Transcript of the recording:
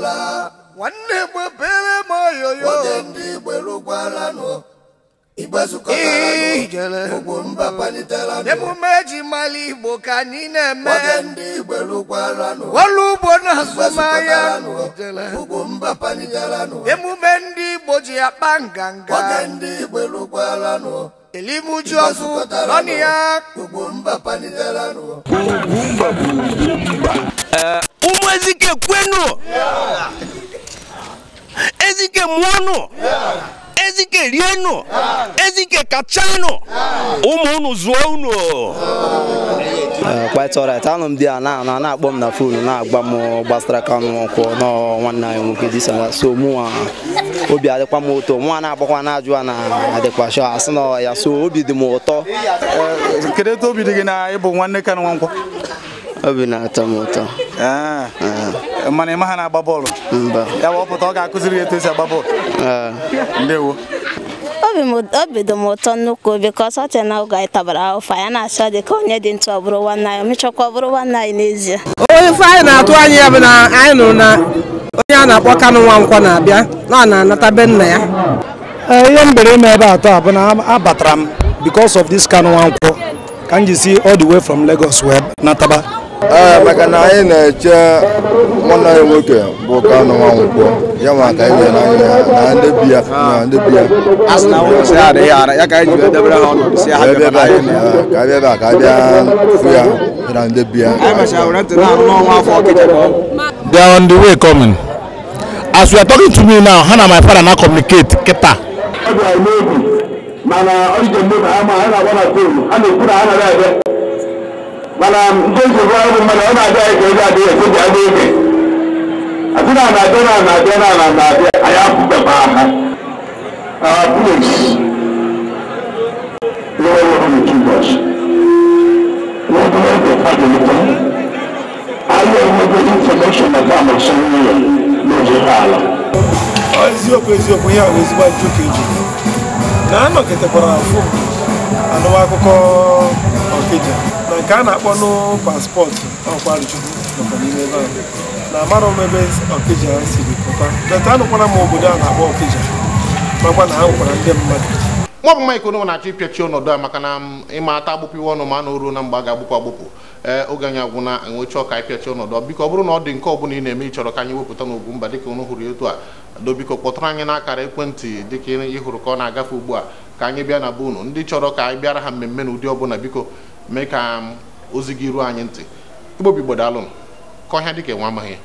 nwanne gbebere m oyoyo ndị emume eji Mali igbo ka anyị na-eme ọrụ ugbo na azụmahịa emume ndị igbo ji akpa nganga elimuji ọzọ ọnụ ya bụ ezike kwenu ezike mwanu ezike rienu ezike kachanu ụmụ unu zụọ unu kpatara anụ m di ya na na-akpọ na m na fon eh, na-agba m gbasara ka m kwụ nwanne anyị nwoke disana so mụnwa obi adịkwa m ụtọ nwa na-agbakwa na ajụ na adịkwa shọ asị na ya so obi dị m ụtọ kedu etu obi dị gị na ịbụ nwanne ka nwa nkwọ obi na-atọ m ụtọ ah. eh, mana ịma ha na-agba bọọlụ mba ya bụ ọpụta ọ ga-akụziri ya etu esi agba bọọlụ ah. ndewo obi dị m ụtọ nnukwu obi ka ọsọ tee na oge anyị tabara ụfa ya na-achọ dị ka onye dị ntụ ọ bụrụ nwanne anyị mechakwa ọ bụrụ nwanne anyị n'ezie onye ife anyị na-atụ anya ya bụ na anyị nụrụ na onye a na-akpọ Kanụ Nwankwọ na-abịa na ọ na-anata be nna ya eh, ihe m bere ime ebe atọ bụ na abatara m because of this Kanụ nkwọ ka m ji si all the way from Lagos wee nataba Eh, maka na anyị na-eche nwa anyị nwoke bụ Kanu Nwankwo ya ma ka anyị na-anya na ndị bi ya na ndị bi ya ka bịa ebe a ka abịa fụ ya na ndị bi ya they are on the way coming as we are talking to me now how na my father na communicate kịta mana ọ dị ka mmadụ ama ha na-agba na kolu ha na-ekwu na ha na-abịa maanaam ntɛnso fún ɛmu mana ɔna adi ayi kɛlɛ adi yɛ sɛbi adi yɛ ati na anadɛ na anadɛ na na ayi afu bɛ paa ha our place lɔɔre wɔn mi tu bɔs wɔn bɛ wɔn bɛ padi mi tɔ ayi ɛmu bɛ information na fún amọ̀sán yɛ lóde ala. ọ eziokwu eziokwu ya bụ ezigbo ajụjụ ka eji na anọ kịtịkwara afọ anụwa akụkọ Okija na nke a na-akpọ n'paspọtụ ọkwa nọkwa n'ime ebe ahụ na amarọ m ebe Okija siri pụta m obodo a na-akpọ Okija makwa na ha ndị mmadụ bụ na-achọ ọnọdụ a maka na ịma ata ọnụ ma a na na mgbe a ga-agbụpụ agbụpụ ee oge anyị agwụna enwecha ọka ịpịachi ọnọdụ biko ọ bụrụ na ọ dị nke ọ bụla ị na-eme ịchọrọ ka anyị wepụta n'ogwu mba dịka ụnụ hụrụ etu a dobiko kpọtụrụ anyị n'akara ekwentị dịka ị ka ọ na-agafe ugbu a ka anyị bịa na be unu ndị chọrọ ka anyị bịara ha na ụdị ọbụla biko mee ka ozi gị ruo anyị ntị igbobi m ka ọhịa dị dịka nwa amaghị